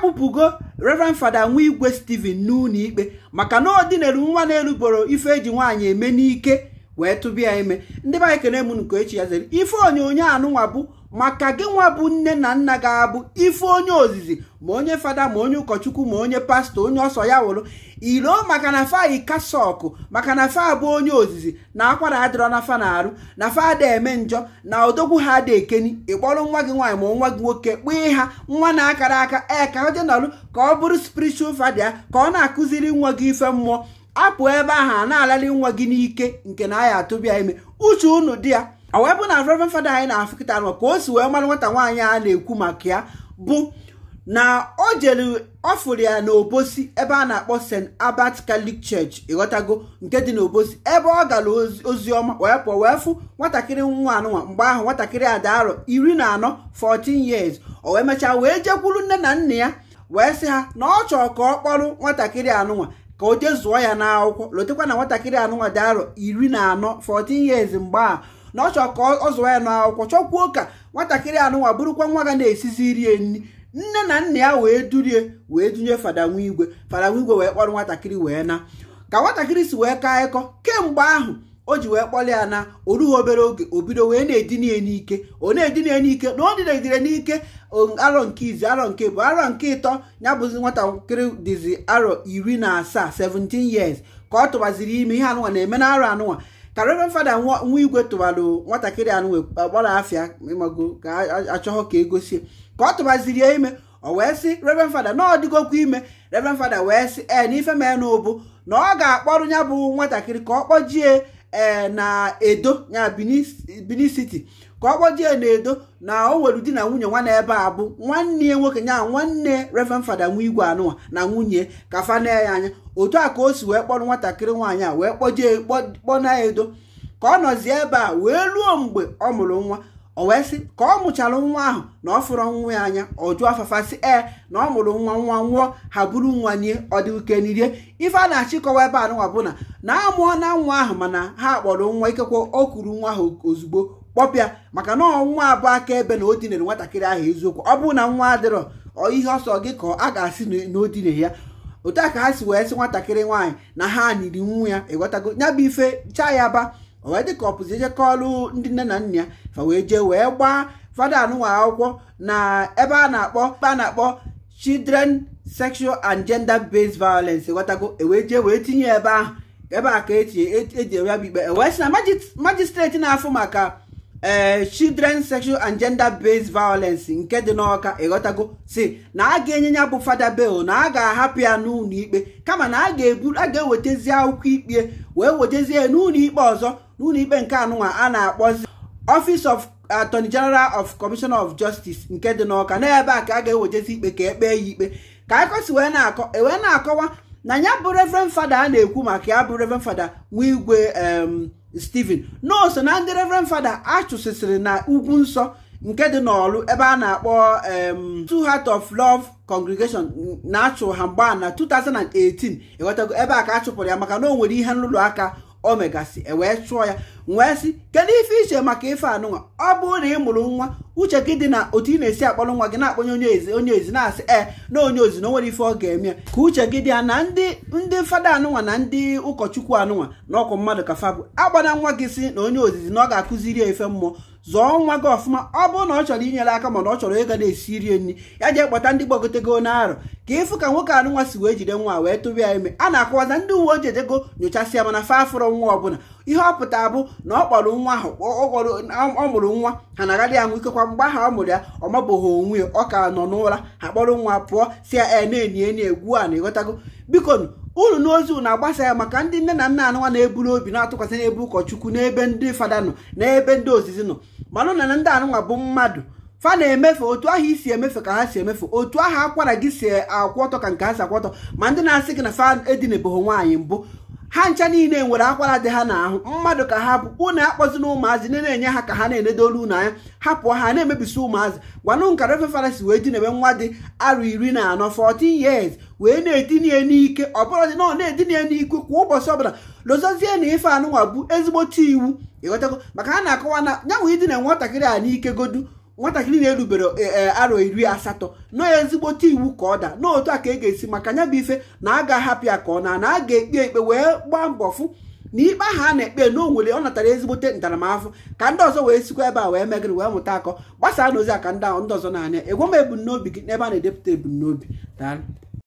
akpụpụgo reverend fada nwa igwe steven n'ụlọ ikpe maka na ọ n'elu nwa na elugboro ife eji nwaanyị eme n'ike wee tụbịa ime ndị be anyị kene nke echi ya zere ife onyonyo anụnwa bụ maka gị nwa bụ nne na nna ga-abụ ife onye ozizi ma onye fada ma onye ụkọchukwu ma onye pastọ onye ọsọ ya wụrụ ilo maka na fa ikasọkụ maka na fa bụ onye ozizi na akwara adịrọ na fa na-arụ na fa ada eme njọ na odogwu ha ada ekeni ịkpọrọ nwa gị nwaanyị ma nwa gị nwoke kpee ha nwa na-akara aka ee ka ọ dị n'ọrụ ka ọ bụrụ spiritual fada ya ka ọ na-akụziri nwa gị ife mmụọ apụ ebe ahụ a na-alali nwa gị n'ike nke na anya atụbia ime uche unu di ya ọ bụ na reverend fada anyị na-afụ kịta nọ ka o si wee mara nwata nwaanyị a na-ekwu maka ya bụ na o jere ọ fụrụ ya n'obosi ebe a na-akpọ st abat catholic church ịghọtago nke dị n'obosi ebe ọ gara ozi ọma wee pụọ wee fụ nwatakịrị nwa anụnwa mgbe ahụ nwatakịrị a arọ iri na anọ 14 years o wee mechaa wee jekwuru nne na nna ya wee sị ha na ọ chọrọ ka ọ kpọrọ nwatakịrị anụnwa ka o jee zụọ ya n'akwụkwọ lotekwa na nwatakịrị anụnwa dị arọ iri na anọ 14 years mgbe a na ọ chọ ka ọ zụọ ya n'akwụkwọ chọkwuo ka nwatakịrị anụnwa bụrụkwa nwa ga na-esizi rie nri nne na nna ya wee durie wee dunye fada igwe fada wee kpọrọ nwatakịrị wee na ka nwatakịrị si wee kaa ịkọ kemgbe ahụ o ji wee kpọlị ya na o obere oge o bido wee na-edinye n'ike o na-edinye n'ike na o dịnegidere n'ike arọ nke izi arọ nke bụ arọ nke ịtọ ya bụzi nwatakịrị dịzi arọ iri na asaa 17 years ka ọ tụbaziri ime ihe anụwa na-eme na arọ anụnwa ka reverend fada nwa igwe tụwarụ nwatakịrị anụnwa gbara afịa mago ka achọghọ ka egosie ka ọ tụbaziri ya ime o wee sị reverend fada na ọ dịgokwa ime reverend fada wee sị ee na ife mee n'ụbụ na ọ ga-akpọrọ ya bụ nwatakịrị ka ọ kpọjie E, na edo ya Benin City ka ọ kpọjee na edo na o nwere di na nwunye nwa na ebe a bụ nwanne ya nwoke ya nwanne Reverend Fada igwe anụnwa na nwunye ka na ya anya otu a ka o si wee kpọrọ nwatakịrị nwaanyị a wee kpọjee kpọna edo ka ọ nọzie ebe a wee ruo mgbe ọ mụrụ nwa o wee sị ka ọ mụchara nwa ahụ na ọ fụrụ nwa ya anya ọ jụọ afafa sị na ọ mụrụ nwa nwa nwụọ ha buru nwa nye ọ dị uke n'irie ife a na-achịkọwa ebe anụnwa bụ na na-amụọ na nwa ahụ mana ha kpọrọ nwa ikekwe o kuru nwa ahụ ozugbo kpọpịa maka na nwa abụ aka ebe na o dinere nwatakịrị ahụ eziokwu ọ bụrụ na nwa adịrọ ihe ọsọ gị ka a ga-asị na o ya otu a ka ha si wee sị nwatakịrị nwaanyị na ha niri nwa ya ịghọtago nya bụ ife chaa ya ba o ka ọpụzi eje kọọlụ ndị nne na nna ya fa wee jee wee gbaa fada anụnwa akwụkwọ na ebe a na-akpọ kpe a na-akpọ children sexual and gender based violence ghọtago ewee jee wee tinye ebe ahụ ebe a ka eji e, e bụ ikpe, ewee sị na majistreti na-afụ maka ee eh, children sexual and gender based violence nke dị n'ọka ịghọtago si na a ga-enye ya bụ fada bel na a ga-ahapụ ya n'ụlọ ikpe kama na a ga-ewetezi akwụkwọ ikpe wee wetezie n'ụlọ ikpe ọzọ n'ụlọ ikpe nke anụnwa a na-akpọzi office of attorney general of commissioner of justice nke dị n'ọka n'ebe a ka a ga-ewetezi ikpe ka ekpee ya ikpe ka akọsi wee na-akọ e wee na-akọwa na ya bụ reverend fada a na-ekwu maka ya bụ reverend fada nwa igwe Stephen nọọsụ na ndị Reverend Fada achụsịsịrị na ugwu nsọ nke dị n'ọlụ ebe a na-akpọ Two Heart of Love Congregation na-achụ ha mgba na 2018 ịghọtago ebe a ka a chụpụrụ ya maka na o nwere ihe nrụrụ aka o megasị ewee chụọ ya wee sị kedu ife iche maka ife anụnwa ọ bụrụ na ị mụrụ nwa uche gị dị na otu ị na-esi akpọrọ nwa gị na-akpọnye onye ezi onye ezi na-asị ee eh, na onye ozi na o nwere ife ọ ga-eme ya ka uche gị dị ya na ndị ndị fada anụnwa na ndị ụkọchukwu anụnwa na ọkwa mmadụ ka fabụ agbana nwa gị si na onye ozizi na ọ ga-akụziri ya ife mmụọ zọọ nwa gị ọfụma ọ bụrụ na ọ chọrọ inyere aka mana ọ chọrọ ịga na-esi rie nri ya jee kpọta ndị gbagotego n'arọ ka ịfụ ka nwoke anụ nwa si wee jide nwa wee tụrụ ya ime a na-akọwaza ndị uwe ojii ejego nyochasịa mana fa afụrọ nwa ọbụla ihe ọ bụ na ọ kpọrọ nwa ahụ ọ mụrụ nwa ha na-agadị anwụ nwa ikekwa mgbe ahụ ọ mụrụ ya ọ mabụghị onwe ya ọ ka nọ n'ụra ha kpọrọ nwa pụọ si ya na enye egwu a na ịghọtago biko unu n'ozi na agbasa ya maka ndị nne na nna anụnwa na-eburu obi na-atụkwasị n'ebe ụkọchukwu n'ebe ndị fada nọ ebe ndị ozizi nọ manụ na ndị anụnwa bụ mmadụ fa na-emefe otu ahụ isi emefe ka ha si emefe otu ahụ akwara gị si akwụ ka nke ha si akwụ ma ndị na-asị gị na fa nwaanyị mbụ ha ncha niile nwere akwara dị ha n'ahụ mmadụ ka ha bụ unu akpọzina ụmụazị na-enye ha ka ha na-enedo olu unu anya hapụọ ha na-emebisi ụmụazị gwanụ nkara ofe farasi wee dinebe nwa dị arụ iri na anọ 14 years wee na-etinye n'ike ọbụladị na ọ na-etinye n'ike kwa ụbọchị ọbụla lozozie na ife anụnwa bụ ezigbote iwu ịghọtago maka ha na-akọwa na nyanwụ idina nwatakịrị a n'ike godu nwatakịrị na-erubere e, e, arọ iri asatọ na ezigbote iwu ka ọ daa na otu a ka e ga-esi maka nya bụ ife na a ga-ahapụ ya ka ọ na na a ga-ekpe ekpe wee gbaa mbọ fụ na ikpe ahụ a na-ekpe na onwere ọ natara ezigbote ntaramahụhụ ka ndị ọzọ wee sikwa ebe a wee megịrị wee mụta akọ gbasaa n'ozi a ka ndị ndị ọzọ na-anya egwe m ebumnobi gị n'ebe a na-edepụta ebumnobi daa.